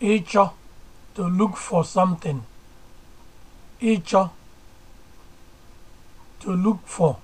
ịchọ to look for something ịchọ to look for